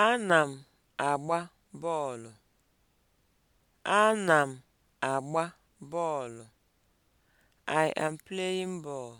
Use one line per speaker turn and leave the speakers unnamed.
Ana m agba bọọlụ. m agba bọọlụ. I am playing ball.